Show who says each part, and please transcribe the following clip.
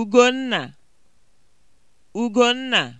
Speaker 1: Ugonna, Ugonna